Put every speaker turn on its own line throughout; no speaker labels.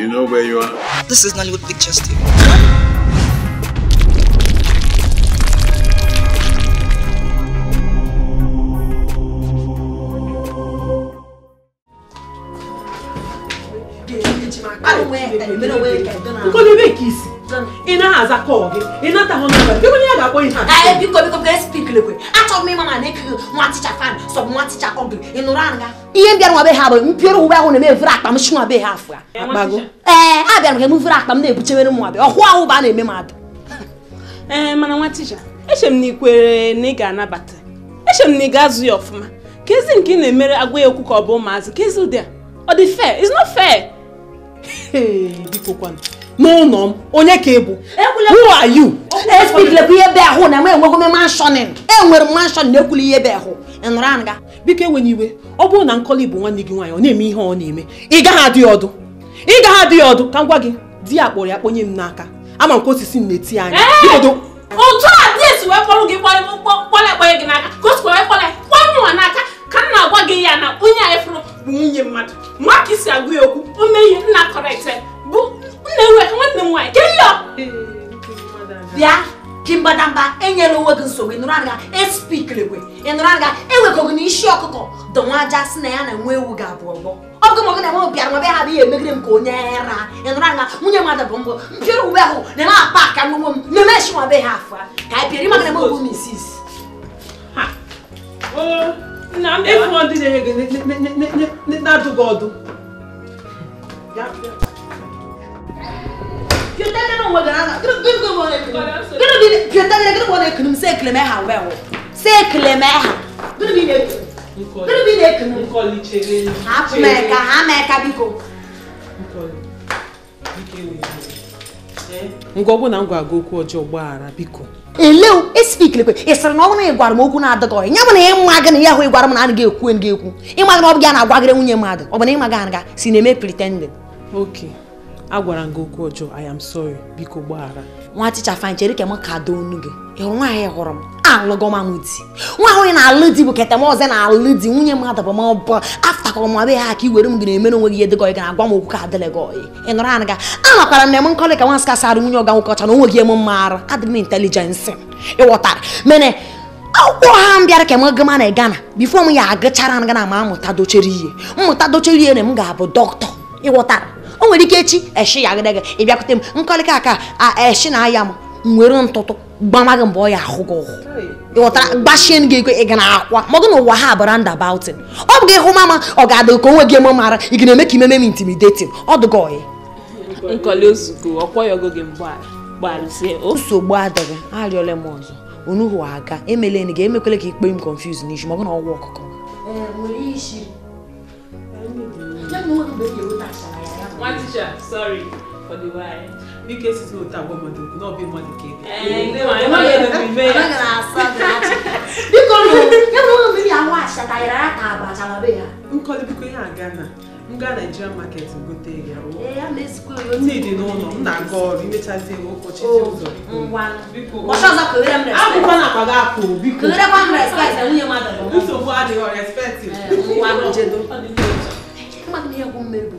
You know where you
are? This is Nollywood Picture Studio.
Oh, where? ị na aza kọọ gị ị natahụ nọmba gị onye ya ga-akpọ ihe a biko biko biko achọrọ ma na-ekiri nwa ticha fan nwa ticha ị nụrụ ihe bịara nwa ha bụ mpịọrọ uwe ahụ na-eme evere akpa m shi be ha afọ ee a bịara ka na-ebuchewere nwa ahụ bụ a na-eme m ee mana nwa ticha eche m na ikwere na ị ga-anabata eche m na ị ga-azụ ya ọfụma
ka nke na-emere agwa ya okwu ka ọ bụ ụmụazị ka ezi
n'ụlọ m onye ka ị bụ who are ihe be ahụ na m enwego m enwere m n'ekwuli ihe ebe ahụ ịnụrụ ga biko enwena iwe ọ bụrụ na nkọli bụ nwanne gị nwaanyị ọ na-eme ihe ọ na-eme ị gaghị adị ọdụ ị gaghị
adị ọdụ ka ngwa gị di ya kpọrọ ya kponye m n'aka ama nke osisi na-eti anya
o nwanne m nwaanyị bịa ji mbadamba enyela onwe gị nsogbu ịnụrụ anaga e ịnụrụ anaga ewekọgị na isi ọkụkọ dọnwa aja si na ya na nwa ewu ga-abụ ọgbọ ọgụ mọgụ na nwa bịa ha bụ ihe emegide m ka onye ara ịnụrụ anaga nwunye mmadụ bụ mbụ mpịrị uwe ahụ na-eme akpa aka n'ụmụ m na-eme esi nwa be ha afọ
ka anyị pịara ịmaga na mụ m
isi na na ekunu m si ekele ha wee wụ si ekele ha hapụ m eka ha ma eka biko ngwa ọbụ na m gwa okwu ọjọọ gbaghara biko ị sịrị na ọ bụrụ na ị gwara m okwu na bụ na ịma gị na ya ahụ m na ekwu ekwu na ọ bụ gị a na-agwagịrị nwunye mmadụ ọ bụ na ịma gị anaga si na-eme pretending okay agwara m gị okwu ọjọọ I am sorry biko gbaghara nwa ticha fine chere ka m ka doo onu gị ịhụrụ nwaanyị hụrụ m alụgọmanụ di nwa ahụ na-alụ di bụ keta m ọzọ na-alụ di nwunye mmadụ bụ mọbụ afta ka ọmụma be ha ka i were m gị na-emere onwe gị ihe dịgọ gị na-agwa m okwu ka adịlị gị ọyị ị nụrụ anaga anọkwara m na-eme nkọlị ka nwansị kasara nwunye ọga nwoke ọcha na onwe gị eme mmarụ adị m intelijensị ịghọtara mene akwụkwọ ha m bịara ka m gama na gana bifo m ya agụchara na gana ma mụta dochere ihe mmụta dochere ihe na m ga-abụ dọkịta ịghọtara o nwere ike echi eshi ya agadaga ị bịakwute m nkọlịka aka eshi na aya m nwere ntụtụ gbamaghị mgbe ọ ya ahụ gị ụhụ ịghọtara gbachie gị ego ị ga na-akwa ma ọ gụ na ụwa ha abara nda bautin ọ bụ gị hụ mama ọ ga-adị ka onwe gị eme mara ị ga na-eme ka imeme m intimidating ọ dụga ọyị nsogbu adịghị arịọla m ọzọ onuhu aga emele ga emekwele ka ikpe m confuse n'isi ma ọ bụ na ọgwụ ọkụkọ
one teacher sorry for the why. Nike si o ta gbọmọ dogun náà bí mọdì kéde. Ẹ̀ẹ́dẹ̀ wà ló yẹ lóbi bẹ́ẹ̀. Ọlọ́gà náà sọ gàtì.
Bíkọ́ nù, yẹ́nu ó mi ní àwọn àṣà ta yàrá ta àgbà àṣà wà bẹ́ẹ̀ ya. Nkọ́lé bíkọ́ yẹn àga náà. M gaa Naijiria market gote ya. Eh, Nne dị n'ụlọ, m na-aga ọrụ imechazi ewu ụbọchị dị ụzọ. Akwụkwọ na
akpa gị apụ biko. Nsogbu adịghị respect.
Mmadụ ihe bụ mmeri bụ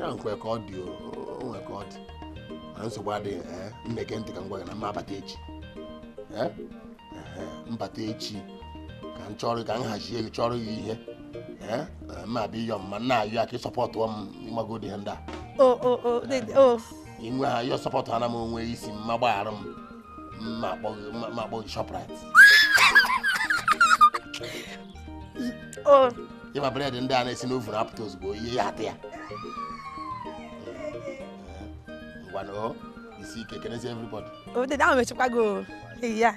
ya nkwe ka ọ dị onwe ka ọ dị mana nsogbu adịghị eh, mmeke ntị ka na mma abata echi eh, eh, mbata echi ka m chọrọ ka m hazie chọrọ gị ihe ma abịa ịyọ mma nna ayọ aka ịsọpọtụ m ịmagodi ha ndị a inwe ha sọpọtụ ana m onwe isi mma gbaghara m mma akpọ gị Shoprite ịma bred ndị a na-esi na apụta ozugbo ihe ya atị ya one You see, can I see everybody?
Oh, the down Chicago. Yeah.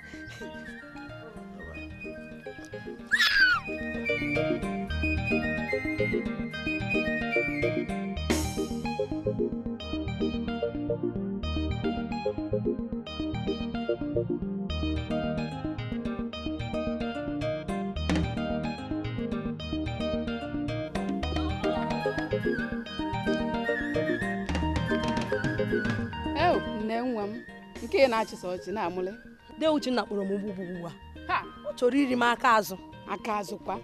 okenye na-achịsa ọchị na-amụle de Uchenna kpọrọ m ugbu ugbu a ọ chọrọ iri m aka azụ aka azụ kwa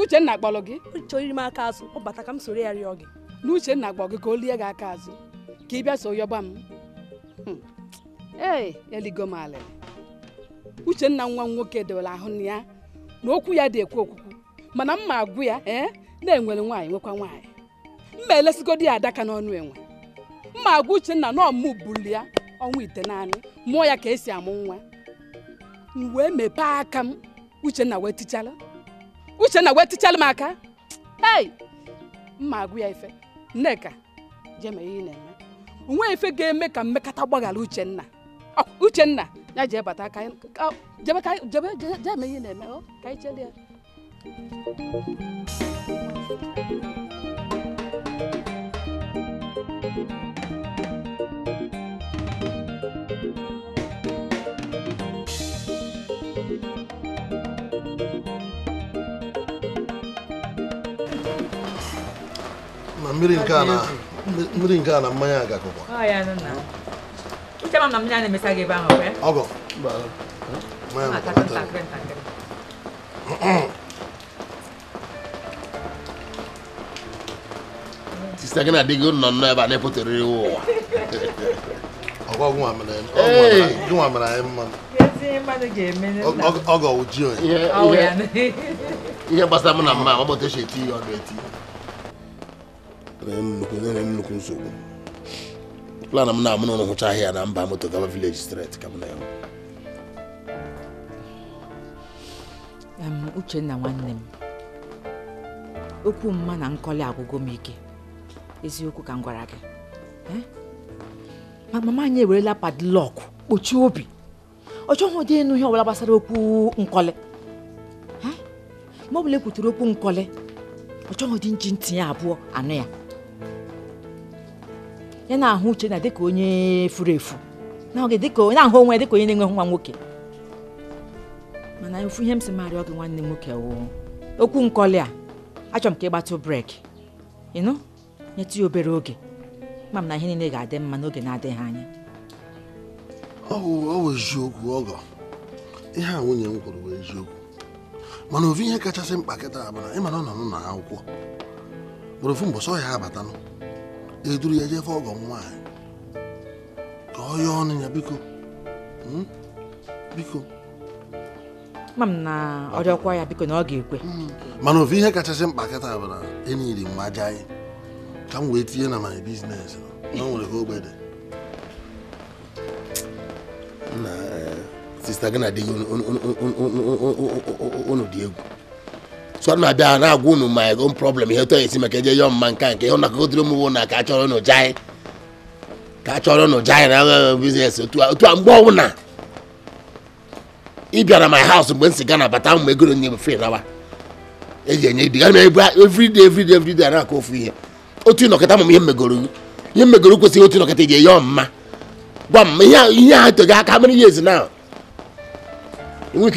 Uchenna kpọrọ gị chọrọ iri m aka azụ ọ bata ka m soro ya rịọ gị na Uchenna kpọ gị ka o lie gị aka azụ ka ị bịa so yọba m hmm. ee eligo m alịlị Uchenna nwa m nwoke dewere ahụ na ya na okwu ya dị ekwu okwukwu mana mma agwụ ya ee eh, na-enwere nwaanyị nwekwa nwaanyị mma elesigo di ya adaka n'ọnụ enwe mma agwụ Uchenna na ọmụ buli ya ọnwa ite naanị mụọ ya ka esi amụ nwa m wee mepee aka m Uchenna wee tichala Uchenna wee tichala m aka ei mma agụ ya ife nneka jeme ihe na-eme onwe ife ga-eme ka mmekata gbaghara Uchenna Uchenna ya ji ebata aka jebe ka jebe jeme ihe na-eme ka anyị chere
mmiri nke a na mmanya agakọkwa ọgọ sista gị na-adịghị nọ nnọọ ebe a na ụwa ọgwa mere anyị mma ọgọ ụji onye ihe gbasara m na mma eti na nnukwu nsogbu plan m na-amụ n'ụlọ hụcha ahịa na mba moto gaba village street ka m na
Uchenna nwanne m okwu mma na nkọli agwụgwọ m ike eziokwu ka m gwara gị eh? ma mama anyị ewerela padlọk kpochie obi ọ chọghị ụdị ịnụ ihe ọbụla gbasara okwu nkọli eh? ma ọ bụla ekwutere okwu nkọli ọ chọghị ụdị nji ntinye abụọ anụ ya ya na-ahụ uche na dịka onye furu efu n'oge dịka onye na-ahụ onwe dịka onye na-enweghị nwa nwoke mana ofu ihe m si marịọ gị nwanne m nwoke wụ, okwu nkọli a achọrọ m ka ị gbatụ breki ịnụ nyetụ ya obere oge ma m na ihe niile ga-adị mma n'oge na-adịghị anya
ọ bụ eziokwu ọgọ ihe a nwunye m kwuru bụ eziokwu mana ofu ihe kachasị mkpa kịta bụ na ịmara ọ nọ n'ụlọ akwụkwọ bụrụ ofu mbọsọ ya abatanụ eduru ya jefe ọgọ nwanyị
ka ọ yọọ ọnụ ya biko biko ma m na ọ ya biko na ọ ga-ekwe mana ofu ihe kachasị mkpa kịta bụ na
enyiri m aja anyị ka m wee tinye na my business na nwere ka ogbede na sista gị na di unu dị egwu so a na-abịa na-agwa unu ma ego problem ihe tọ esi maka eje yọọ mma nke a nke ihe nakọgotiri na ka achọrọ nụ janyị ka achọrọ nụ janyị na aghaghị biznes otu a mgbe ọbụla ịbịa na my house mgbe m si gana bata mgbe egoro nye m fri eji enye ibi gana ebu na-akọ ofu ihe otu ihe megoro ihe megoro kwesịrị otu ga eyọ mma gwa m ihe aka mere ihe ezi na enwe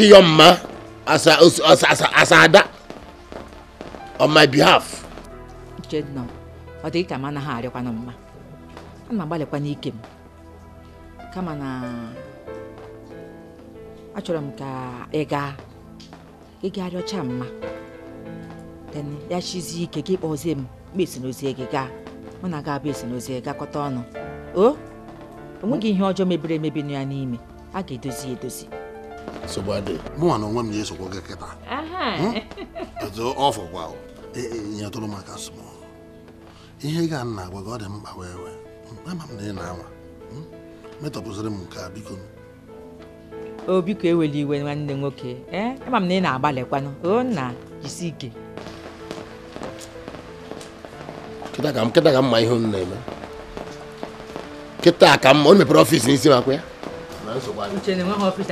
on my behalf.
Jednọ, ọ dị ka m anaghị arịọkwana mma a m agbalịkwa n'ike m kama na achọrọ m ka ị gaa ị gaa rịọcha mma ya chizie ike ka ịkpọzie m mgbe esinozie gị gaa mụ na ga-abụ esinozie gakọta ọnụ o onweghị ihe ọjọọ mebiri emebi nọ ya n'ime a ga-edozi edozi
mụnwa na onwe m ga-esokwa gị kịta
hmm?
ọfọkwa nyetụrụ maka asụmọ ihe ga nna agwa gị ọ dị mkpa wee wee ama m na ị na-anwa hmm? metọpụziri m nke a biko
o biko eweli iwe nwanne nwoke ee ama m na ị na-agbalịkwanụ o nna jisi ike
kịta ka m ma ihe unu na-eme kịta ka m ọ mepere ọfịs n'isi makwa ya
mmatụ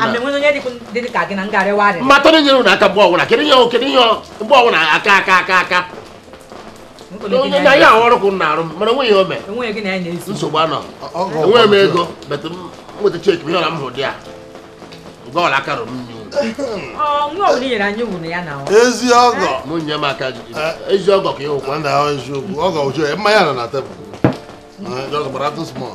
na nyere
ụnụ aka mgbe ọbụla kedu ihe kedu ihe mgbe aka aka aka aka onye na ya ọrụ kwụ na-arụ mana onwe ome nsogbu anọ enwe m ego betụ nweta cheki ihe ọla m hụ dị ya mgbe ọla aka rụrụ mmiri ezi ọgọ nye m aka ezi ọgọ ka ịhụkwa mmanya nọ na tebụl gbara atụ smọl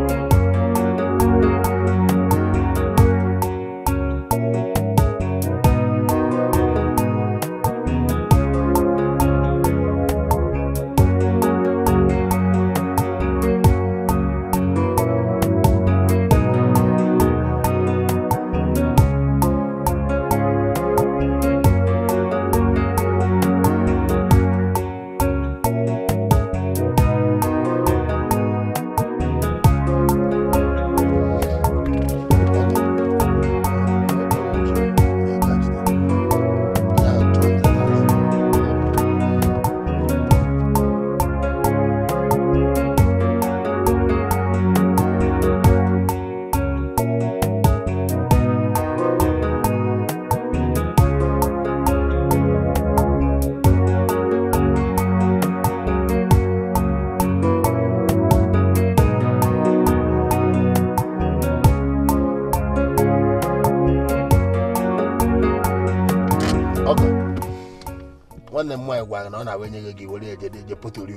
nyege gị were eje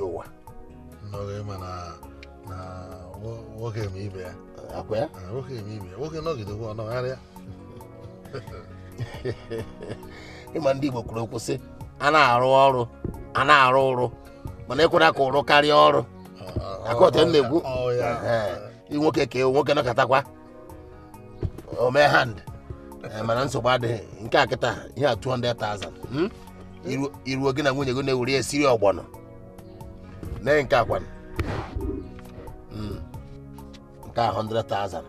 ụwa nwoke ya nwoke eme ibe ya ọnọgharịa ịma ndị Igbo kwuru okwu sị a na-arụ ọrụ a na-arụ ụrụ mana ekwere ka ụrụ karịa ọrụ akọta na egwu ị nwoke ka ewu nwoke mana nsogbu adịghị nke a ihe a 200,000 iruo gị na nwunye gị na-ewere esiri ọgbọnọ mee nke akwa hmm. nke a 100,000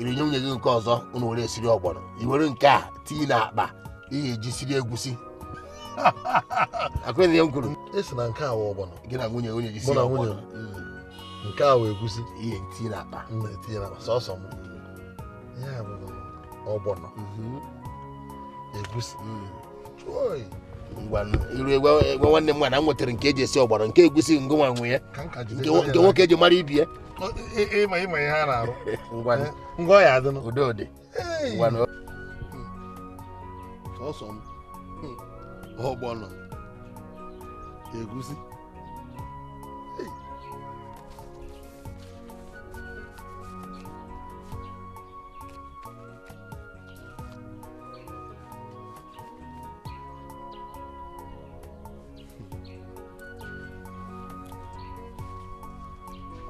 nye nwunye gị nke ọzọ unu were esiri ọgbọnọ iwere nke a tinye na akpa iyi eji siri egwusi akụrụ ihe m kwuru esi na nke a wụ ọgbọnọ gị na nwunye onye jisi ọgbọnọ hmm. nke a wụ egwusi ihe tinye na akpa tinye na akpa sọsọ m hmm. ya bụ ọgbọnọ mhm. egwusi iru nwanne m nwana m nwetara nke eji esi ọgbara nke egusi ngo nwa nwe ya nke nwoke eji mara ibie ọgbọnọ egusi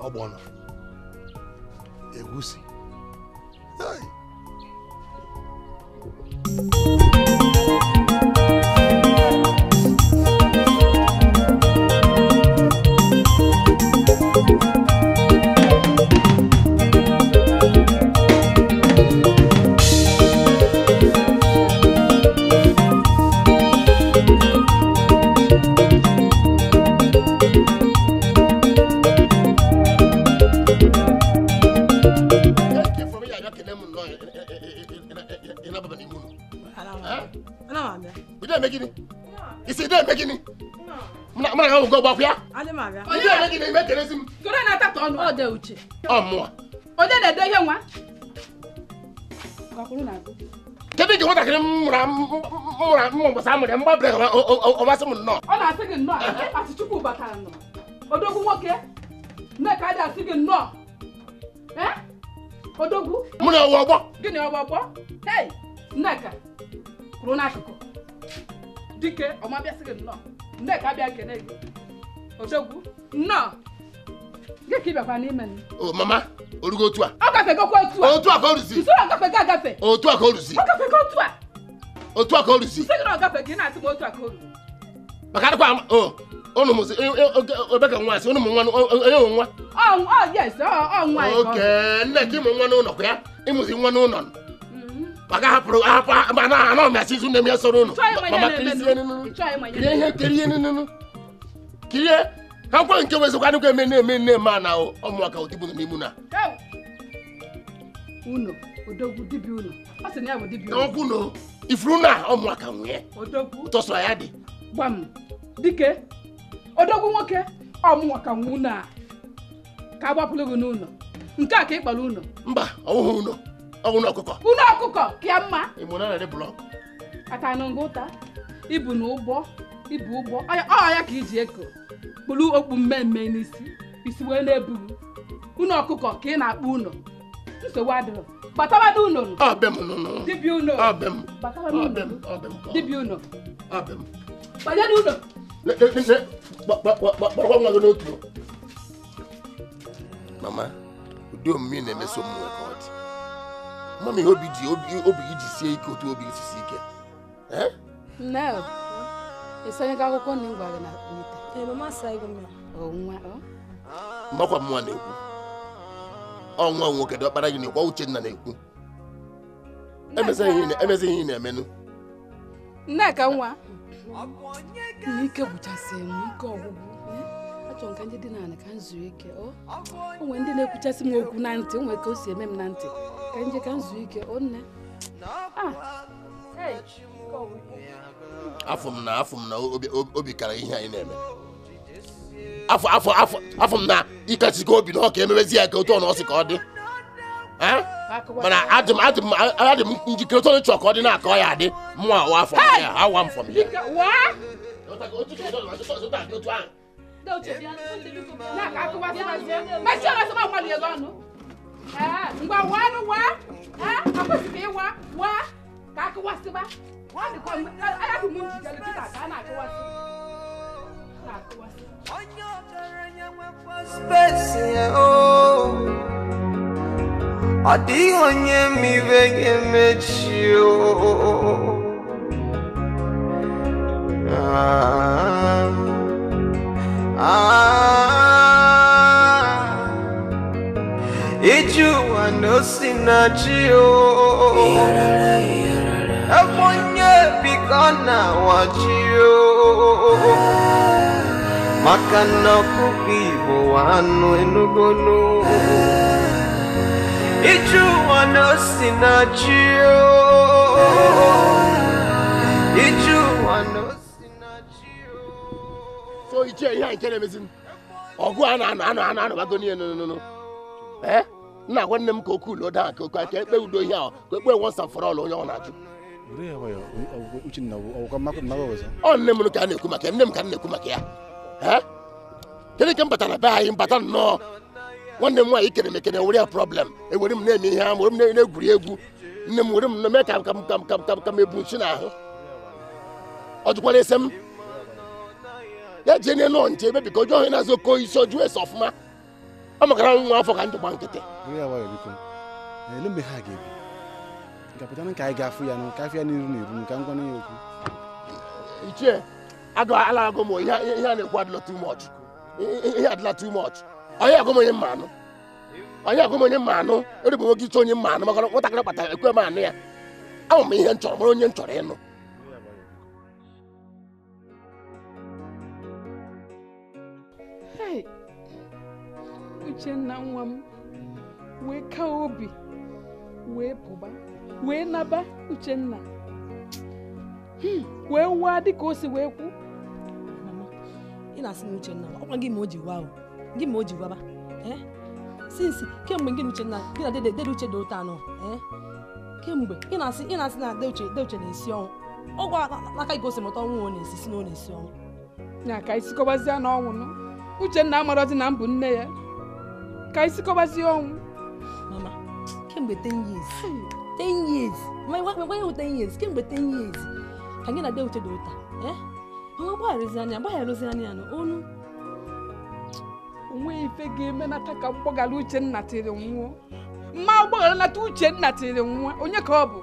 ọgbọnọ egusi. Hey. uche ọmụa
onye na-ede ihe nwa
kedu iji nwatakịrị mụra mma mgbasa amụrị mgbabere ọmasị m
nnọọ ọ na-asị gị nnọọ asị chukwu batara nọ odogwu nwoke nneka adị asị gị nnọọ odogwu mụ na ọwa ọgbọ gịnị ọwa ọgbọ hei nneka kwuru n'akụkụ dike ọma bịasị gị nnọọ nneka abịa kene gị odogwu nnọọ gị n'ime
mama orugo otu a ọ
gafegokwa otu a otu a ka o ruzi otu a
ka o ruzi otu a ka o ruzi otu a ka o maka o e, e, nwa asị nwa e, onye nwa oke nne ka ịmụ nwa n'ụlọ kwa ya ịmụzi nwa n'ụlọ mm-hmm. maka hapụrụ mana ya ha nkwa nke wezikwa adịkwa eme na-eme nne ma na ọmụaka odibo nọ
na unu odogwu dibịa unu ọ sị na ya bụ dibịa unu ọkwụ na ifuru na ọmụaka nwunye odogwu tọsọ ya dị dike odogwu nwoke ọmụaka nwu na ka agbapụrụ gị n'ụlọ nke a ka ịkpara ụlọ mba ọwụhụ ụlọ ọwụna ọkụkọ ụlọ ọkụkọ ka ya mma ịmụna na blọk aka na ngụta ibu na ụgbọ ibu ụgbọ ọ ya ka iji eko kpụrụ okpu mmemme n'isi isi wee na-eburu unu ọkụkọ ka ị na-akpụ ụlọ nsogbu adịrọ gbatabadị ụlọ dibịa ụlọ dibịa ụlọ
gbanyere ụlọ mama
ụdị omume na-emeso ka ọ dị mama ihe obi obi ji sie ike otu obi ike
ka akwụkwọ nne m gwa gị na
mbakwa ọ nwa na-ekwu ọnwa nwoke dị ọkpara gị na-ekwu Uchenna na-ekwu emezighị ihe na-emenụ
nneka nwa n'ike m ike m ike o nwere ndị na-ekwuchasị m okwu na ntị nwere ka o si eme m na ntị ka nje ike
afọ m na afọ m na obi kara ihe anyị na-eme afọ afọ afọ m na ịkachikọ obi na ka ya ka otu ọnụ ọsị ka ọ dị
mana adị m adị m
adị m njikere otu ọnụ chọọ ka ọ dị na-akọ ya adị mụnwa awa afọ m ha awa m fọm ya
ngwa waa nụ waa akwesịghị ịwa waa ka akụwasịba wọ́n kọ́ aláàbò mú jìjà lókè
Ah, ah, Iju wa no oh. ji maka na ọkụkọ Igbo anụ enugonu ije ụwa na osi na ji ije ụwa na osi na ji
so iche ihe nke na-emezi ọgụ a na-anụ anụ anụ anụbago niile nụnụnụ nna nwanne m ka okwu ulo daa ka okwu aka ekpe udo ihe ahụ ka ekpe once and for onye ọ na-ajụ nne m ka a na-ekwu maka ya nne eh? m ka na-ekwu maka ya kedu ka m batara be anyị mbata nnọọ nwanne m nwaanyị kere m ekene were ya problem ewere m na-eme ihe ama were m na-egwuri egwu nne m were m mee ka ka ka ka m ebu nchi n'ahụ ọ jụkwara ese m ya jee n'elu ọnje ebe biko ọjọọ onye na-azụ oke isi ọjụọ ese ọfụma ọ makara nwa afọ ka njikwa nkịtị pụtapụtanụ ka anyị ga-afụ ya ka afụ ya n'iru n'iru ka m gwana ya okwu ichie ala agụ ihe a na-ekwu adịla too much ihe adịla too onye agụ m onye mma anụ onye agụ m onye mma anụ erigbo nwoke iche onye mma anụ maka nwatakịrị kpatara ekwe m anụ ya ahụ m ihe m chọrọ mara onye m chọrọ ịnụ
uchenna nwa m wee ka obi wee pụba wee naba Uchenna hmm. wee waa dịka o si wee kwu
ị na-asị na Uchenna ọkwa gị gị ma o ji waba sinsi eh? kemgbe gị gị na uche dị ụta anọ eh? kemgbe ị na-asị
ị na-asị na de uche na-esi ọnwụ ọgwụ aka ọnwụ si na ọ na-esi ọnwụ na ọnwụ nne ya ka ọnwụ mama kemgbe 10 years nwa ya 10 years kemgbe 10 years ka gị na de uche dị ụta nwa gbagharụzi anya gbagharụzi anya ya olu onwe ife ga-eme na ka mgbaghara uche tiri nwụọ mma gbaghara nata Uchenna tiri nwụọ onye ka ọ bụ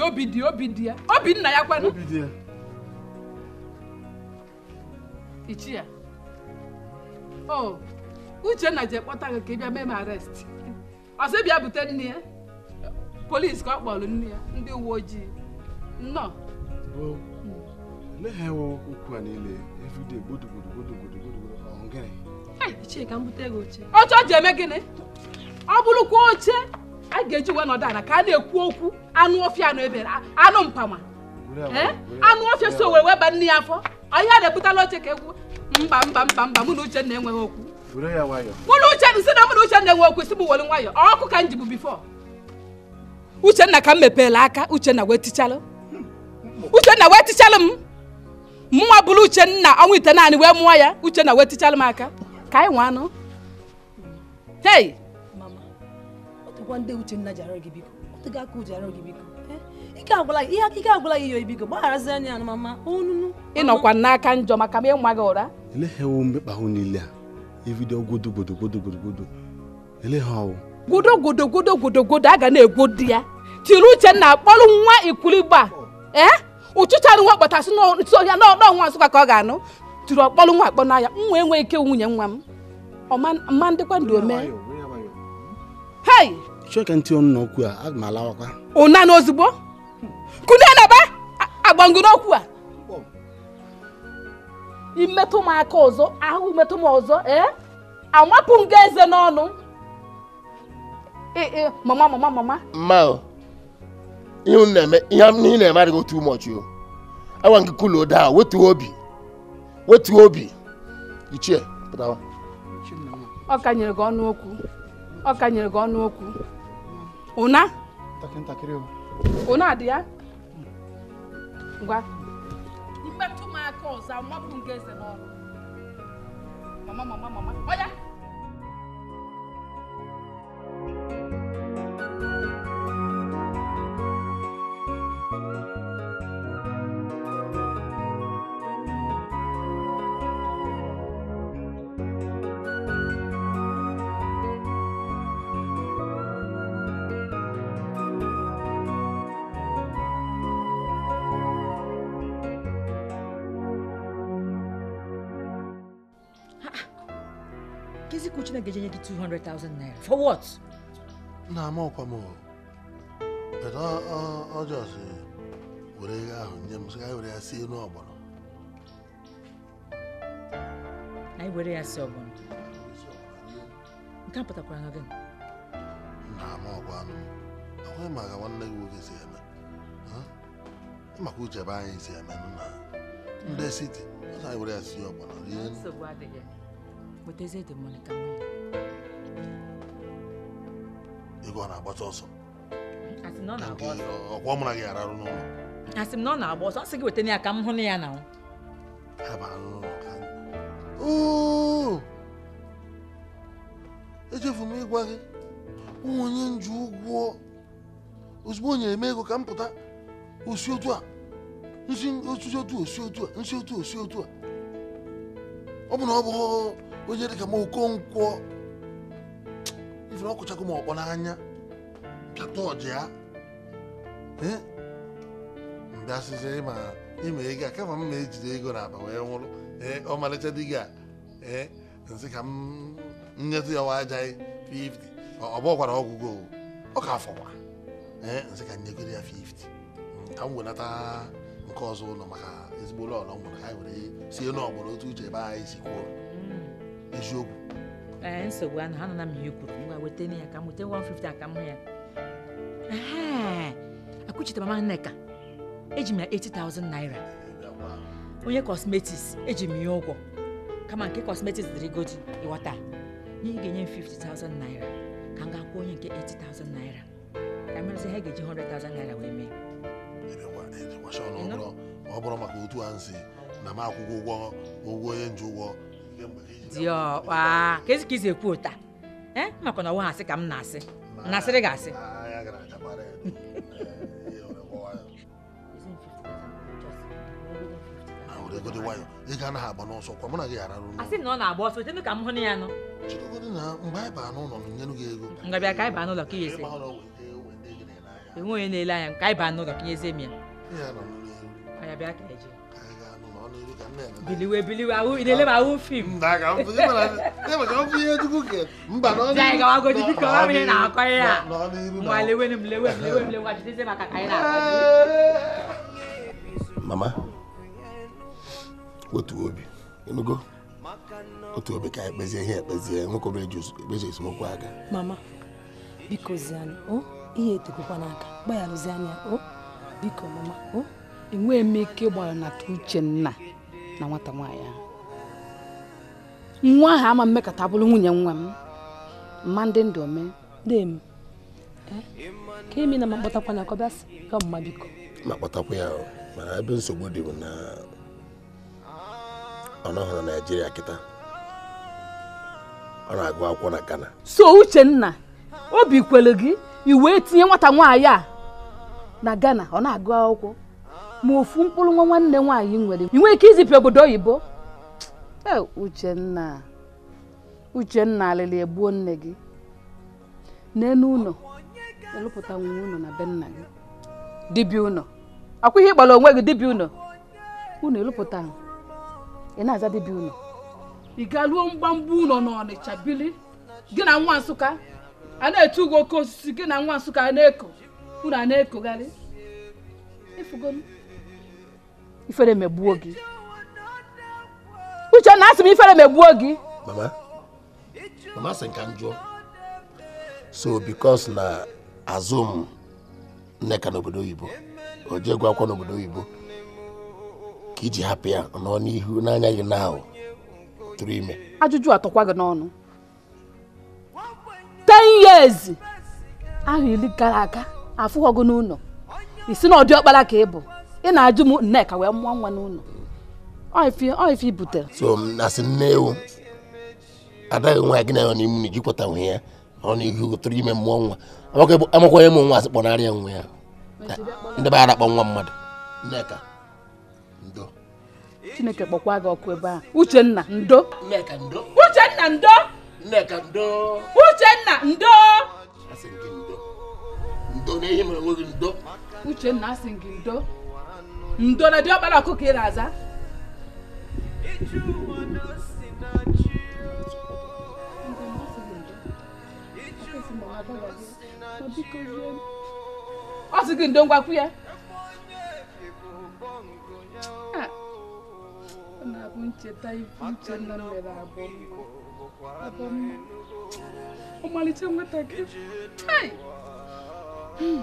obi dị obi dị obi nna ya kwanụ ichie o uchenna ji kpọta gị ka ị bịa mee m arest bịa bute nne ya polisi ka ọ kpọrọ nne ya ndị uwe ojii nnọọ ọ bụrụ eme ọ bụrụkwa oche a ga-eji wee nọdụ ala ka a na-ekwu okwu anụ ọfịa na ebere anụ mpama anụ ọfịa so wee weba nne ya afọ ọhịa na-ebutala oche ka egwu mba mba mba mba mụ na Uchenna enweghị okwu mụ na Uchenna si na mụ na Uchenna enwe okwu si m were nwayọ ọkụ ka m jibu bifo Uchenna ka m mepeela aka Uchenna wee tichalụ Uchenna wee tichalụ m mụnwa bụrụ Uchenna ọnwa ite naanị wee mụọ ya Uchenna wee tichalụ m aka ka anyị nwe anụ
agwa ndị Uchenna ji arịọ gị biko ọdịga aka ji arịọ gị biko eh, ike agwụla ihe ike gbagharazi
n'aka njọ maka gị ụra niile a na-egwo di ya tiri Uchenna akpọrọ nwa ee eh? ụchụchara nwa kpọtasị n'isi ọhịa n'ọnwa ka ọ ga-anụ tiri ọkpọrọ nwa akpọ n'ahịa nwa enweghị ike nwunye nwa m ọma ndịkwa ndị omee
chọka ntị ọnụ n'okwu a aga m
alawakwa ụna na ozugbo kude naba agbango n'okwu a imetụ m aka ọzọ ahụ imetụ m ọzọ ee amapụ m ga eze n'ọnụ ee mama mama mama
mma ihe ị na-eme ihe na-eme adịghị otu ụmọchị o awa nke kulo daa wetuo obi wetuo obi ichie pụtawa
ọ kanyere gị ọnụ okwu ọ kanyere gị ọnụ okwu Una. Takin ntakịrị o. Una adị ya? Ngwa. Imetụ m aka ọzọ, amapụ m gị eze n'ọrụ. Mama mama mama. Oya.
Chineke ga-enye gị 200,000 naira. For what? na-ama ọkwa m
bata ọjọs were ego ahụ nye m sị were ya si elu ọgbọrọ
anyị were ya si ọgbọrọ nke a pụtakwara na gị Nna ama ọkwa anụ
akwaghị maka nwanne gị nwoke si eme maka uche ebe anyị si eme nna, ndị siti ọsọ anyị were ya si ọgbọrọ
rie kpọtezie dị mmanụ ka nwunye
ego ọ na-agbata ọsọ ọkwa na gị ararụ n'ụlọ
asị m na ọ na-agba ọsọ ọ gị wetana ya ka m hụ na ya na
echefu m ịgwa gị onye nju ụgwọ ozugbo onye eme ego ka m pụta osi otu a nsi otu osi otu a nsi otu osi otu a ọ bụ na ọ bụ onye dịka m okonkwo ife na m ọkpọ n'anya pịata ọja ya mbịasịzi ịma ego a kama m ma ejide ego na akpa wee nwụrụ ọ ọmalịcha di gị a ee nzi ka m nyetụ ya wajaghị 50 ọ bụọkwara ọgwụgwọ ọ ka afọkwa ee nzi ka nyegoro ya 50 ka m wenata nke ọzọ ụlọ maka ezigbo ụlọ ọlọ nwere anyị were sie n'ọgbọrọ otu uche ebe anyị si kwuo eziokwu
nsogbu ana ha nọ na m ihe kwuru ngwa weta ya ka m weta 150 aka m ya akwụchite mama nneka eji ya 80,000 naira onye kọsmetiks eji m ụgwọ kama nke kosmetiks dịrị godi ịghọta nye ga-enye m 50,000 naira ka m ga-akwụ onye nke 80,000 naira ka merụsị ha ga-eji 100,000 naira wee mee
ọ bụrụ maka otu a na m ụgwọ ụgwọ onye nji ụgwọ Dị
diọkpa ka ezi ka ị ekwu ụta makwa na ọ asị ka m na-asị nasịrị gị asị na gị ghara n'ụlọ asị na ọ na-agba ọsọ chenu ka m hụ ya nọ chidogodị ka anyị baa n'ụlọ ka ihe ese enwe onye na-ele anya ka anyị baa n'ụlọ ka ihe eze m ya ya bịa ka eji biliwe biliwe ahụ ile leba ahụ fim gawagoji biko ọ bụ ihe na-akọ ihe a nwa lewe m lewe m lewe m lewe jideze maka ka anyị na mama
otu obi enugo otu obi ka ekpezi kpezie ihe ekpezie nwoke obere ebeji esemokwu aka
mama biko zianụ o ihe etokokwa
n'aka gbagharụzi anya o biko mama o enweghị m ike ịgbaghara na uche nna na nwata nwaanyị ahụ nwa ahụ ama mmekọta bụrụ nwunye nwa m mma ndị ndụ ome dem ka emi na makpọtakwa na kọbịasị ka ọmụma biko
makpọtakwa ya mana ebe nsogbu dị m na ọ na naijiria kịta ọ na-agụ akwụkwọ na ghana
so uche nna obi kwere gị i tinye nwata nwaanyị a na ghana ọ na-agụ akwụkwọ ma ofu mkpụrụ nwa nwanne nwaanyị nwere ị nwee ike izipụ obodo oyibo e, Uchenna Uchenna alịlị egbuo nne gị n'elu ụlọ elụpụta nwunye ụlọ na be nna gị dibịa ụlọ akwa ihe ịkpọrọ onwe gị dibịa ụlọ ụlọ elụpụta ị na-aza dibịa ụlọ ị ga-ruo mgbamgba ụlọ n'Ọnịcha bili gị na nwa Nsụka a na-etu ugo oke osisi gị na nwa Nsụka na-eko ụlọ a na-ekogharị ifugolu ifere megbuo gị uche na asị m ifere megbuo gị mama
mama sị ka m jụọ so bikos na azụ m nneka n'obodo oyibo o akwa gwakwa n'obodo oyibo ka iji hapụ ya nọ n'ihu n'anya gị na tụrụ ime
ajụjụ atọkwa gị n'ọnụ ten years ahụ iri gara aga afụghọgụ n'ụlọ isi na ọdịọkpara ka ị bụ ị na-ajụ m nneka wee mụọ nwa n'ụlọ ọifi butere so
na nne ewu adaghị nwa gị na ya n'ime na ijikwata nwe ya ọ na ihe ụtụrụ ime mmụọ nwa amakwanye m nwa asị kpọnarịa nwa ya ndị kpọ akpọ nwa mmadụ
nneka ndo chineke kpọkwa gị ọkụ ebe a uchenna ndo uchenna ndo ndo ndo uchenna asị gị ndo ndona diobala kukira aza ọ sị gị ndo ngwakwu ya ah. ọ na-abụ gị hmm.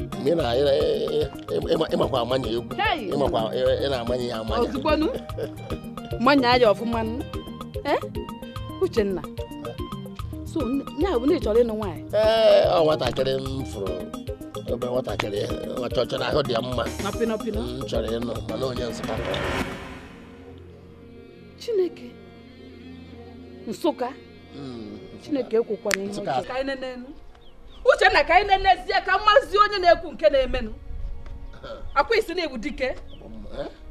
mgbe ị na-ịmakwa amanye egwu ịmakwa ị na-amanye ya amanye ozigbonu
manya ya ọfụma eh? Uchenna so ya bụ na ị chọrọ ịnụ nwaanyị ee
eh, ọ nwatakịrị m fụrụ ebe nwatakịrị chọchọrọ ahụ dị mma m chọrọ ịnụ mana onye Nsụka
Chineke Nsụka hmm. Chineke ekwekwana ihe ọjọọ uchenna ka anyị na-enezie ka mmazi onye na-ekwu nke na-emenụ akwa isi na-egbu dike eh?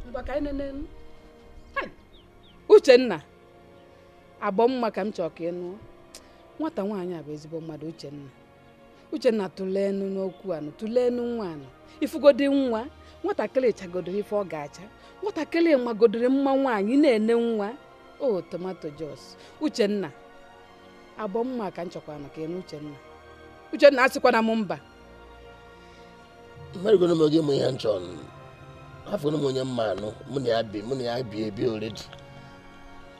ngwa ka anyị na-enenu uchenna agbọ mma ka m chọọ ka ị nụọ nwata nwaanyị a bụ ezigbo mmadụ uchenna uchenna tụleenụ n'okwu anụ tụleenụ nwa anụ ifugodi nwa nwatakịrị chagodoro ife ọ ga-acha nwatakịrị magodoro mma nwaanyị na-ene nwa o tomato jos uchenna agbọ mma ka m chọkwara ka ị nụ uchenna Uchenna na m mba
mmerigoro m oge mụ ihe nchọ afọrọ m onye mma anụ mụ na ya bi mụ na ya bi ebi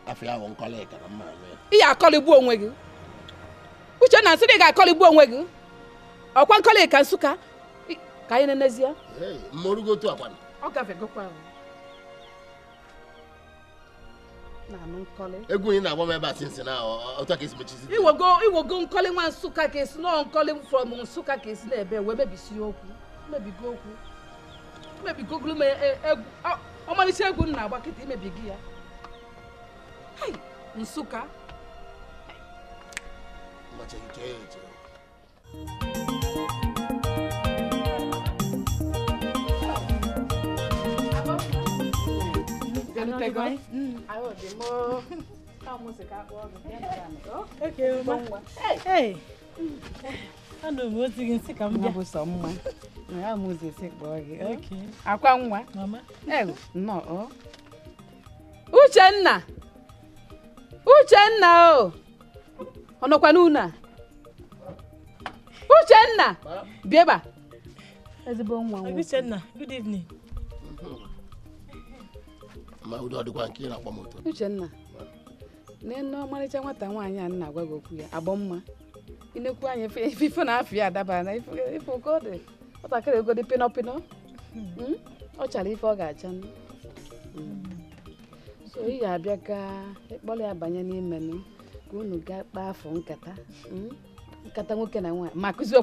afọ ya bụ nkọla na mma anụ
ya ị ga onwe gị Uchenna na ị ga-akọlịgbu onwe gị ọkwa nkọlị ka Nsụka ka anyị na-enezie mmorugo otu akwana ọ gafegokwa ahụ
egwu ị na-agba m ebe a sinsi na otu ka esi mechizi
iwogo nkọli nwa nsụka ka esi nọọ nkọli from nsụka ka esi na-ebe wee mebisie okwu mebigo okwu mebigogolu m e, e, egwu ọmalịcha egwu m na-agba kịta imebigo ya nsụka
Thank you.
Ahụ dị m mma. Ya Akwa nwa. Oh. Uchenna! Uchenna o! Oh. Ọ Uchenna! Bịa ebe nwa. Uchenna, good evening.
ma ụdị dịkwa nke ị na-akpọ m otu
Uchenna n'enu ọmarịcha nwata nwaanyị a nna agwa gị okwu ya agbọ mma inekwu anya ife na ya dabara na ife oke ọ dị nwatakịrị egodi dị pịnọ hmm? ọ chara ife ọ ga-acha hmm. so ị abịa ka ya banye n'ime nụ unu ga kpaa afọ nkata hmm? nkata na nwaanyị ma gị ife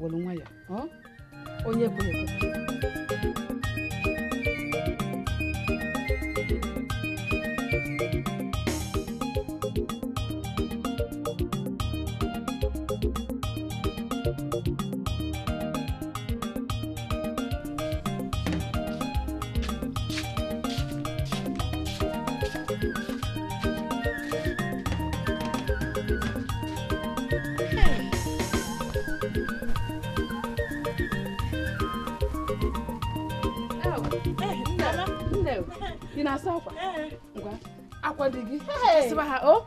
were nwa ya
onye ekweghị ekwe
ị na-asa akwa ngwa akwa dị gị sụchasịba ha o oh.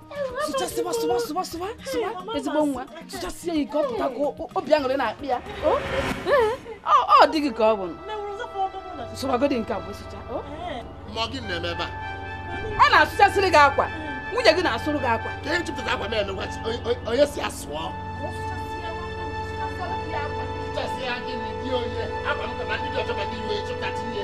sụchasịba sụba sụba sụba sụba ezigbo nwa sụchasịa ya ike ọ pụta ka obi aṅụrị na-akpị ya oh. ọ dị gị ka ọ bụ sụbagodị nke abụọ sụcha oh. ọ na-asụchasịrị gị akwa nwunye gị na-asụrụ gị akwa ka ihe jupụtara akwa mere onye si asụọ sụchasịa gịnị dị onye akwa m kama ndị dị ọchọ ma ndị iwe chụpụta tinye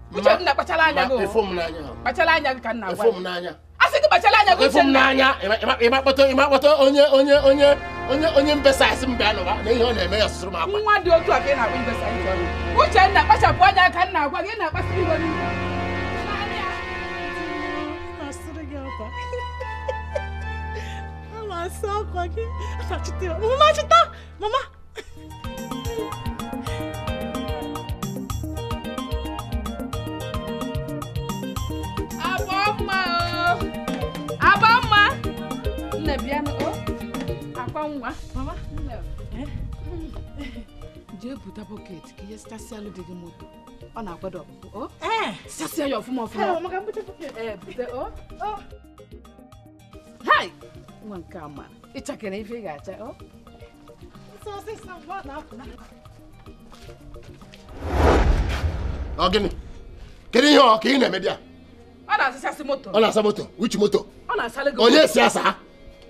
kuche nna kpachala anya go kpachala anya ka nna gwa a sị gị kpachala anya go uche nna ịmakpọta ịmakpọta onye onye onye onye onye mbesasị mbe anụba na ihe ọ na-eme ya sụrụ m akwa nwa dị otu a ka ị na-akpọ mbesasị uche nna kpachapụ anya ka nna gwa gị na-akpasị iwe n'ihu Mama,
só aqui. Mama, tá? Mama.
nwa mama eh? jee buta bọket ka ihe alụ dị moto ọ na-akwado ọpụpụ oh? eh? ya ọfụma ọfụma eh, oh, oh. hai nwa nke a ma ịchakere ife ị ga-acha
ọ gịnị kedu ihe ọ ka ị na-eme bịa
ọ na-asasị moto ọ na-asa
moto uchi moto
onye si asa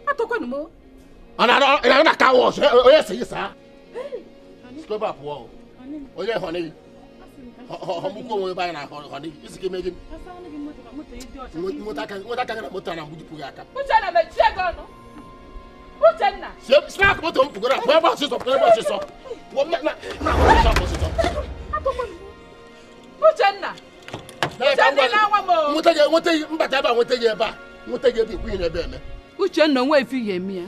atọkwanụ m
anaona car wash oye seyi saa scrub up wọ oye honi
ọmụkwu
onwe ebe anyị na honi isi ka eme gị nweta aka gị na moto a na mgbujupu gị aka snak moto m pụgoro pụọ ebe ọsịsọ pụọ ebe ọsịsọ
pụọ na ọsịsọ ọsịsọ Uchenna nweta gị mbata ebe a nweta gị ebe a nweta gị ebe ikwu ihe ebe eme Uchenna onwe efi ya eme ya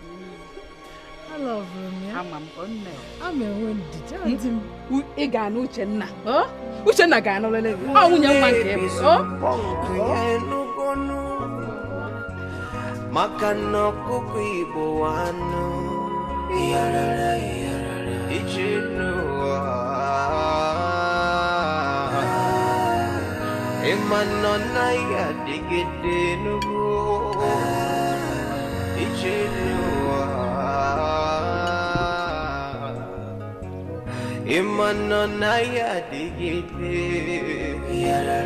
Hmm? ị ga-anụ Uchenna Uchenna ga-anụlele gị ọ nwunye nwa nke bụ
maka na ọkụkọ Igbo anụ ije n'ụwa ịma nọ naghị adịgide n'ugwu ije n'ụwa ìmọ̀nà náírà dégédé. yàrá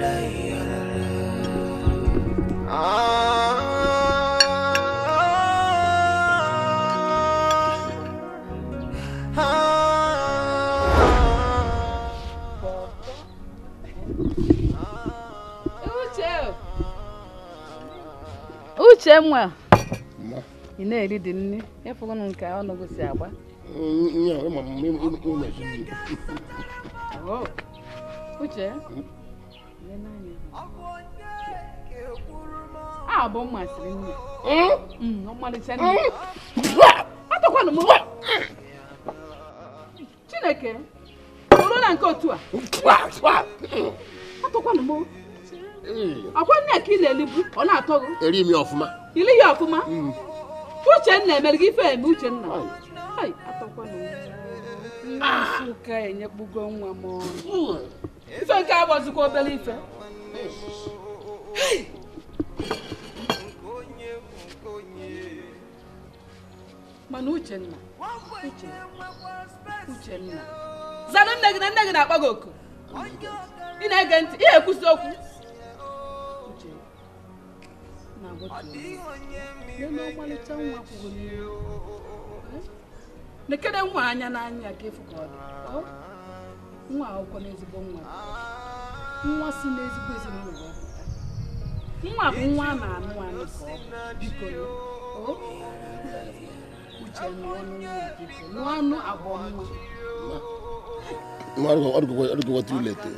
yàrá.
Uchenwa, ị na-eri dị nri, efughị m nke ọnụ gị si agba. uche a bụ mmasịrị nne ọmalịcha nne atọkwana m chineke oro na nke otu a atọkwana m akwa nne ka ị na-elibu ọ na-atọ gị eri m ọfụma ili ya ọfụma hmm. uche nna emere gị ife eme uche nna atọkwanke enyekpugo nwa m ife nke agbazikwa obere ife mana uchenna uchenna nne gị na nne gị na-akpọ gị oku ị na-ege ntị ihe ekwusi okwu nekere nwa anya n'anya ka efu ka ọ dị nwa akwụkwọ n'ezigbo nwa nwa si n'ezigbo ezinụlọ nwa bụ nwa a na-anụ anụ ka ọ biko uche nụọ anụ abụọ
nwa ọdụgọgọ too late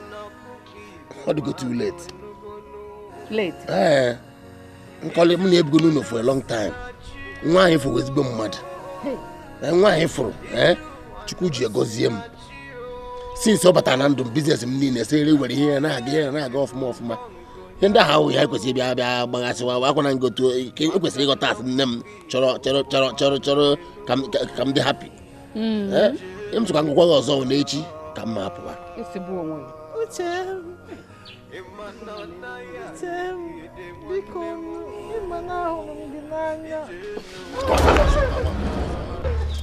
ọdụgọ too late late ee nkọli m na-ebugo n'ụlọ for a long time nwa anyị fọwụ ezigbo mmadụ Eh, nwaanyị fụrụ eh, chukwu ji egozie m sinsi ọ batara na ndụ m biznes m niile sere were ihe ya na-aga ihe na-aga ọfụma ọfụma ihe ndị ahụ ya ekwesịrị bịa bịa gbaghasịwa akwana ngotu ekwesịrị eh, e ịghọta asị nne m chọrọ chọrọ chọrọ chọrọ chọrọ ka m dị hapi hmm. m tụkwa ngwụkwa gị ọzọ n'echi
ka m ma pụwa e
biko ịma m gị n'anya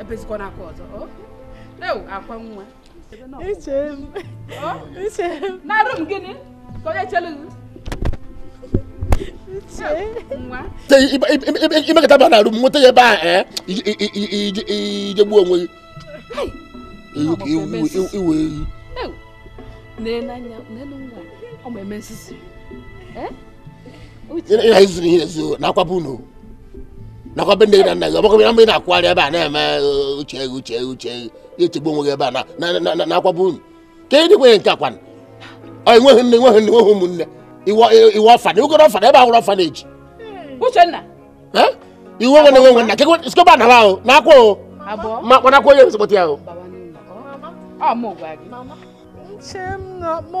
ebezi kona aka não é akwa nwa na rum gịnị ka onye chelu
imekata ba na rum nweta ya ebe a ijegbuo onwe gị iwe
ehi ịha iziri
ihe ezo na akwapụ unu nakwa be ndị na nna gị ọgbakọ bịa mgbe ị na-akwụgharị ebe a na-eme uche gị uche uche gị echegbu onwe gị ebe a na akwaba unu ka ị dịkwenye nke akwana enweghị nne enweghị nne enweghị ụmụnne iwe ọfana ugoro ọfana ebe ahụrụ ọfana eji iwu onwe na enwe nna kekwe sikọba na ahụ na akwa o ma kpanakwa onye ahụ
Nche m na-akpọ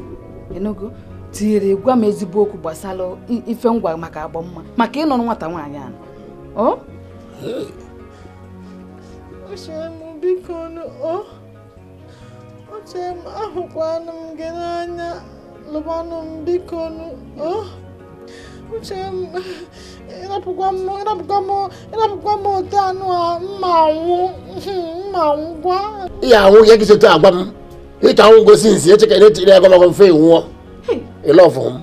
enugu tinyere gwa m ezigbo okwu gbasara ife ngwa maka agbamma maka ịnọrọ nwata nwaanyị ahụ ọ
biko m m biko ịrapụkwa m ote anụ a mma anwụ mma anwụ gwa
ya anwụ ya gị sote agwa m ita ahụ ngosi nsi echeke na etiri agụ magụ mfe nwụọ ịlọfụ m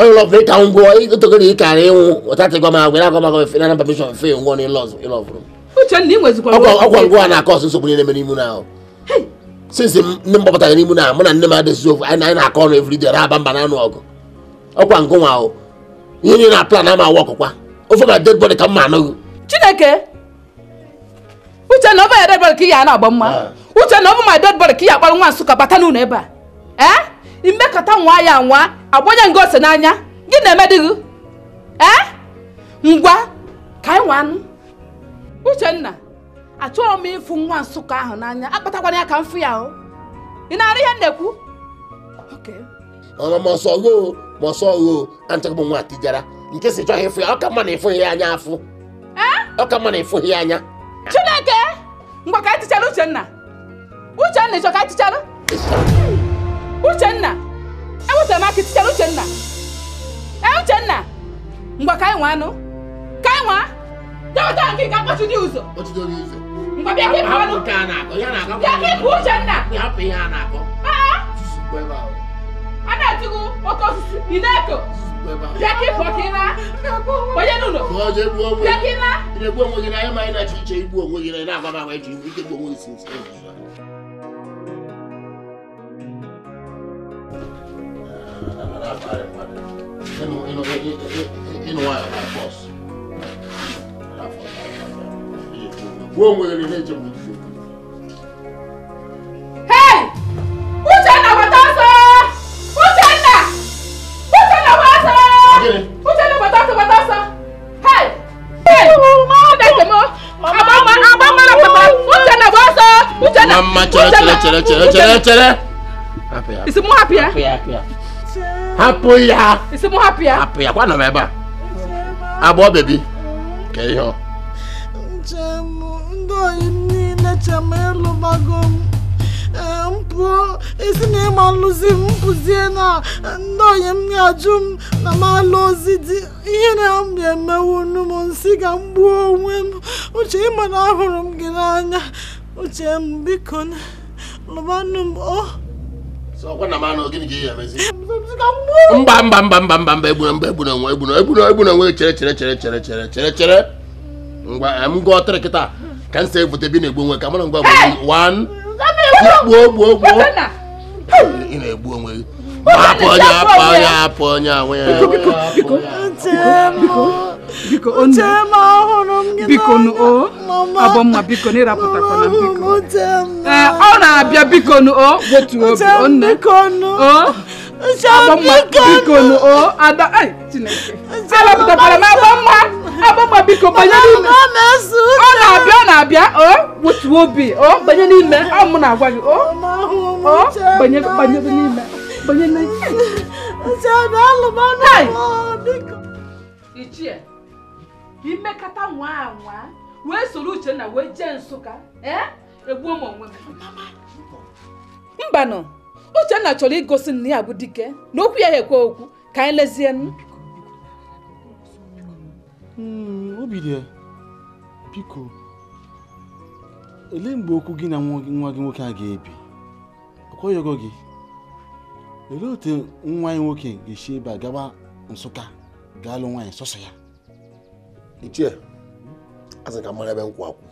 onye lọfụ ịka ngwụọ togoro ịkara ịnwụ ọtatịgwa m agwere agụ magụ mfe nana pamishọn mfe nwụọ na ịlọfụrụ ọkwa ngwụ a na-akọ ọsụ nsogbu niile mere imu na ahụ sinsi ndị m gbapụtara n'imu na mụ na nne m adịzi ofu anyị na-akọ ọnụ everyday na-aba mba na anụ ọgụ ọkwa ngụ nwa ahụ
ihe niile na plan ama awa ọkụkwa ofe ma dead body ka m ma anụghị chineke uche na ọ bụ ya dead body ka ị ya na-agba mma uche na ọ bụ my dead body ka ị akpara nwa nsụka bata n'ụlọ ebe a ee eh? imekọta nwa ya nwa agbanye nga ose n'anya gị na-eme dị gị ee eh? ngwa ka anyị nwa anụ uchenna achọghị m ịfụ nwa nsụka ahụ n'anya akpatakwana ya ka m fụ ya o ị na-arụ ihe m na-ekwu
ọnụ mọsọ ghoo mọsọ ghoo anchọghị m nwa atijara nke si chọghị ịfụ ya ọ ka mma na ịfụghị ya anya afụ eh? ọ ka mma na ịfụghị ya anya
chineke ngwa ka anyị tichara uchenna Uchenna ịchọ ka a chịchara Uchenna ewetara m aka chịchara Uchenna ee Uchenna ngwa ka anyị nwa anụ ka anyị nwa nke ka mkpọchi dị ụzọ ngwa bịa ka ịbụ anụ bịa ka Uchenna a na-atụgụ oke osisi na-eko
bịa ka na na akpọ. ma na-achọ
iche na na You know, you know, you know, you know
Hey! Mama, chere, chere, chere, chere, chere,
chere.
Happy, happy. Is it more happy? Eh? Happy, happy, happy. hapụ ya hapụ ya kwanọ m ebe a agbọọ bebi ka ihe ọ
ndị oyi niile chem elụbago m pụọ isi na ịma lụzi m pụzie na ndị onye m ga-ajụ m na m alụ ozi dị ihe na m ga-emewu nnu m nsị ka m gbuo onwe m uche ịma na ahụrụ m gị n'anya uche m biko lụbanụ m o oh, mba mba
mba mba mba mba egbuna mba egbuna nwe egbuna egbuna egbuna nwe chere chere chere chere chere chere chere ngwa m gụọ tịrị kịta ka m si bi na-egbu onwe ka mara ngwa gbuo gbuo gbuo ị na-egbu onwe gị hapụ onye hapụ onye hapụ onye
ya biko nu o abọmma biko na biko ee ọ na-abịa biko nu o obi onne abọmma biko nu ada ai chineke
arapụtakwara
abọmma biko banye n'ime ọ na-abịa ọ na-abịa o obi o banye n'ime ọ mụ na banye n'ime banye n'ime imekata nwa anwa wee soro Uchenna wee jee Nsụka eh? egbuo m onwe m mbanụ Uchenna chọrọ igosi nna ya bụ dike na okwu ya ekwe okwu ka anyị lezie
hmm, obirie biko ele mgbe okwu gị na nwa gị nwoke a ga-ebi ọkwaghị gị elee otu nwa ya nwoke ga-esi ebe a gaba Nsụka ga-alụ nwaanyị sọsọ ya ichie asị ka mara ebe nkwụ akwụ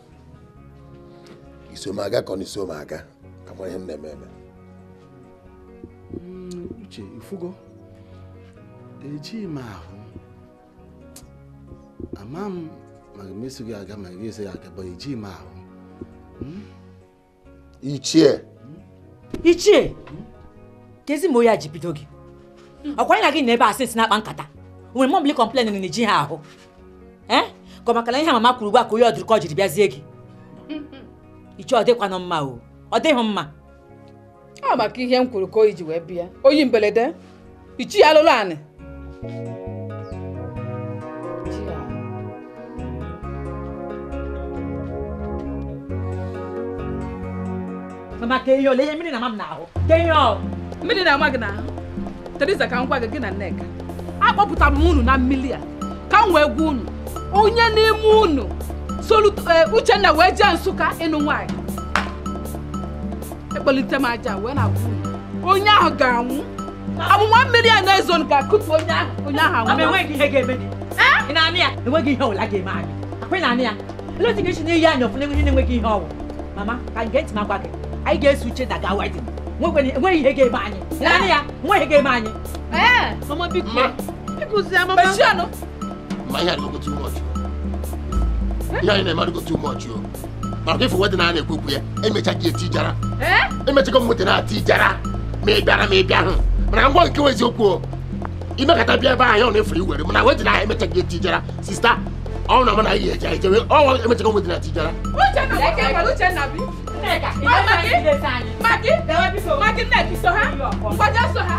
isomaga ka ọ na aga, ka mara ihe m na-eme eme uche mm, ifugo ejighị m ahụ ama m ma ga gị aga ma gị eso ya aga bụ ejighị m ahụ hmm? ichie hmm?
ichie hmm? kezi ma oya ji bido gị ọkwa anyị na gị na ebe asịsị na-akpa nkata nwere mọbili kọmplen na eji ha ahụ ka maka na ihe mama kwuru ugbu a ka onye ọdụrụ ka ọ jiri bịazie gị iche ọ dịkwanụ mma o ọ dịghị mma
ọ maka ihe m kwuru ka o ji wee bịa oyi mberede ichi alụlụ anị
mama ka ihe ole ihe mmiri na mama n'ahụ
ka ihe mmiri na-ama gị n'ahụ Teresa ka m gwa gị gị na Nneka akpọpụtara m unu na mmiri a ka m wee gwa unu onye n'ime unu solu eh, Uchenna wee jee Nsụka ịnụ nwaanyị ekpelite m aja wee na
onye ahụ ga-anwụ amụma mmiri a na-ezo ka akụtu onye ahụ onye ahụ anwụ eleti ga-esi n'iyi anya ọfụna enweghị na-enweghị ihe ọwụ mama ka nke ntị magwa gị anyị ga-eso Uchenna gaa wedin enweghị ihe ga-eme anyị naanị ya nweghị ga-eme anyị ee eh! mama biko biko zie mama
ma ihe a na too much ihe anyị na-emarigo too much o maka ife wedịn a na-ekwekwu ya emecha gị eti jara emechago na-ati ma ị ma ị bịa hụ mana ngwa nke eziokwu imekata bịa ebe anyị ọ na-efu iwere mana wedịn ahụ emecha gị eti jara sista ọnwụ na e na ga-eje
jara so ha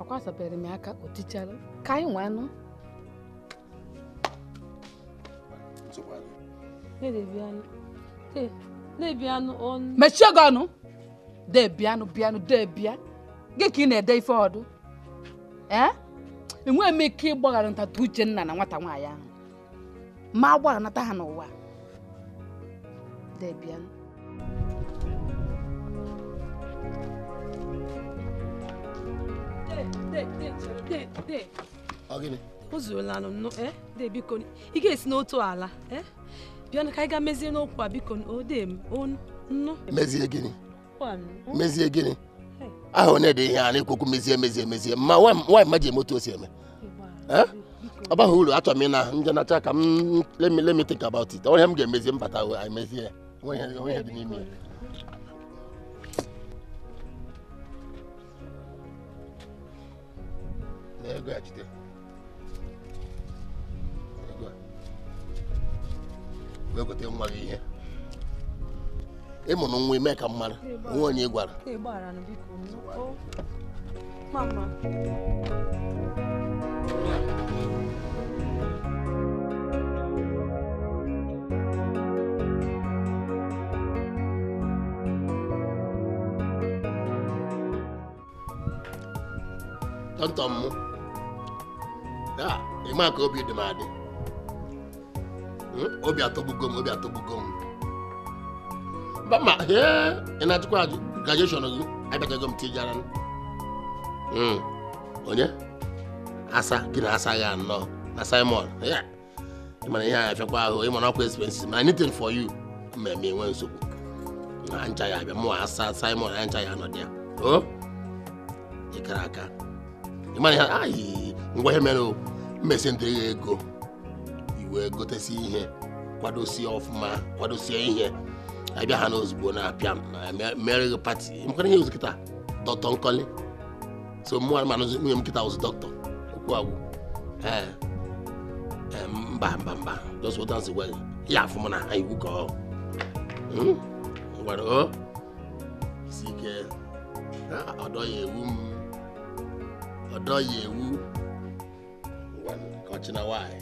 ọ kwasapere m aka o tichara ka anyị nwa anụ mechie gị ọnụ debianụ bịanụ debia gị ka ị na-ede ife ọdụ enweghị m ike ịgbaghara ntata Uchenna na nwata nwaanyị ahụ ma a gbaghanata ha n'ụwa debianụ o zuola eh, de biko ị ga-esi n'otu ala eh? bịa ka anyị ga mezie n'okwu a biko nnu
mezie gịnị mezie gịnị
aha onye dị ihe a na mezie mezie mezie emezie mma nwaanyị ma ji eme otu o si eme eh? ọ baghị uru achọrọ m ị na nacha ka m think about it onye m ga-emezi mbata i ya onwe n'ime ya ego a jide wee gote nwa gị ihe ịmụrụ nwa ime ka mmadụ onwe onye gwara tọntọ m That, taa the ka obi dị m adị hmm? obi atọgbugo m obi atọgbugo m mba ma ee ị na-ajụkwa ajụ graduation gị abịachago m tijara hmm. onye asa gị na asa ya anọ na simon ịmara ihe a afiakwa ahụ ịmara ọkwa expenses ma anything for you ma eme enwe nsogbu na ncha ya abịa mụwa asa simon na ncha ya anọ dị ya o oh, ịkara aka ịmara ihe ahụ ngwa ihe mere mmesi ndị ya ego iwe gotesi ihe kwadosie ọfụma kwadosie ihe abịa ha n'ozugbo na-apịa mere gị pati mkwara ihe ozi kịta dọkịta nkọli so mụnwa ma nụzi nwunye m kịta ozi dọkịta okwu agwụ e, mba mba mba just what dance well ya afụma na ha iwu ka ọ hmm? ngwara o si ike ọdọ ya ewu m ọdọ ya ewu ọ̀kyina wáyé.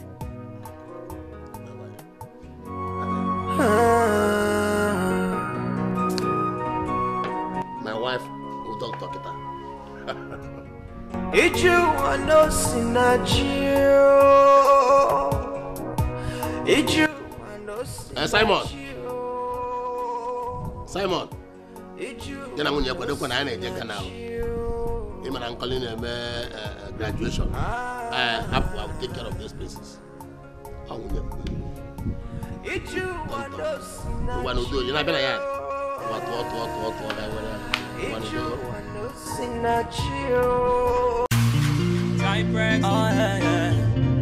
My wife will talk eh, to kita.
Ichu wano sinachio. Ichu wano Simon.
Simon. Ichu. Jana mwenye kwa duko na ana eje him and Uncle Neme uh, eh, graduation. Ah. I have I will take care of these places. I will never. ụwa n'udo onye na-abịa na ya ụwa
tụọ tụọ tụọ tụọ ya
nwere ụwa n'udo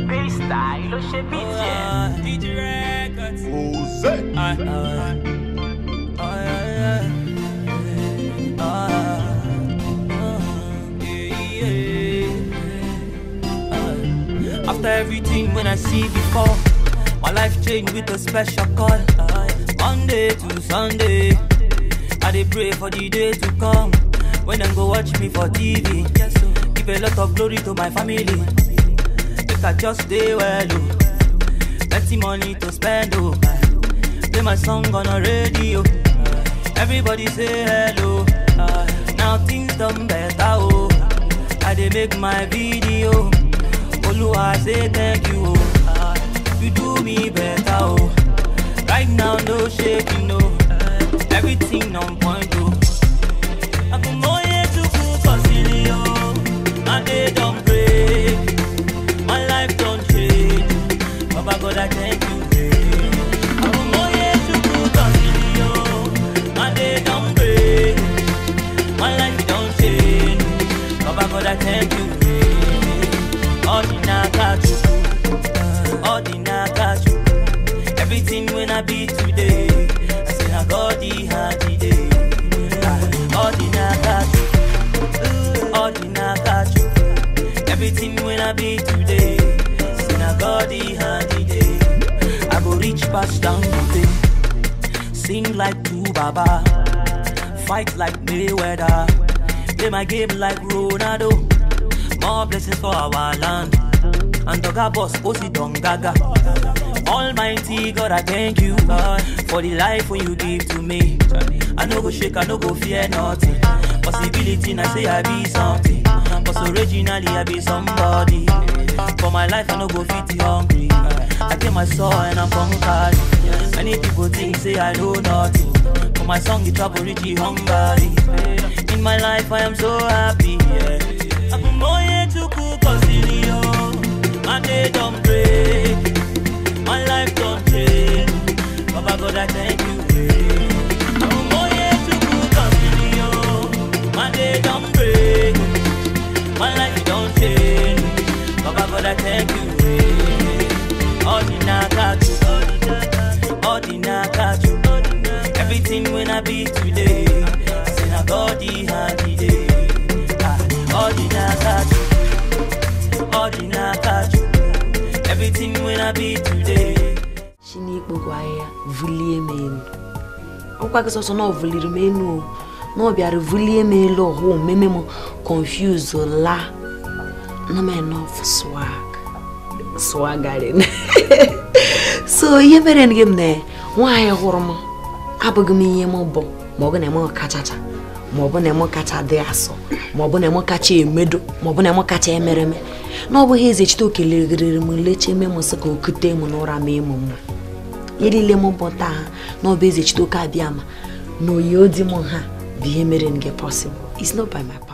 Freestyle, lo ṣe bí tiẹ̀. DJ Records. Ose. Ah, ah, when I see before. My life changed with a special call. Monday to Sunday, I dey pray for the day to come. When them go watch me for TV, give a lot of glory to my family. Make I just stay well, oh. Plenty money to spend, oh. Play my song on the radio. Everybody say hello. Now things done better, oh. I dey make my video. Oluwa say thank you me better, oh. Right now, no shaking, no. Everything on point, oh. I put more here to cook a oh. My day don't break. My life don't change. Baba God, I thank pass down thing. Sing like two baba, fight like Mayweather. Play my game like Ronaldo. More blessings for our land. And Doga boss, Osi oh, Don Almighty God, I thank you for the life when you give to me. I no go shake, I no go fear nothing. Possibility, I say I be something. Cause originally I be somebody. For my life, I no go fit hungry. I tell my soul and I'm conquered. Yes. Many people think say I know nothing. But my song is travel reach the hungry. In my life I am so happy. Yeah. I'm more to cook on My day don't break. My life don't change. Baba God I thank you. i My day don't break. My life don't change. God I thank you. Sina body happy day Ordi na pati ah, Ordi na pati Everything when I be today
Chinik bo gwaye, voulie men Ou kwa keso se nou voulie men ou Nou non, biyare voulie men ou Ou mè mè mè konfuse la Nou mè nou foswag Foswag gaden So yeme ren gemme Wanye hormon abụghị m ihe m bụ ma na m kachacha ma na m kacha dị asọ maọbụ na m kacha emedo maọbụ na m kacha emereme na ọ bụghị eze chite okelere m leche mụ m sị ka okute m n'ụra ma ịmụ mma ihe niile m bụ taa ha na ọ bụ
eze chite oke abịa ma na oyi odi m ha bụ ihe mere m gị pọsịbụl